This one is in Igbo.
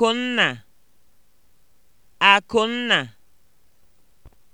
Akụnna, Akụnna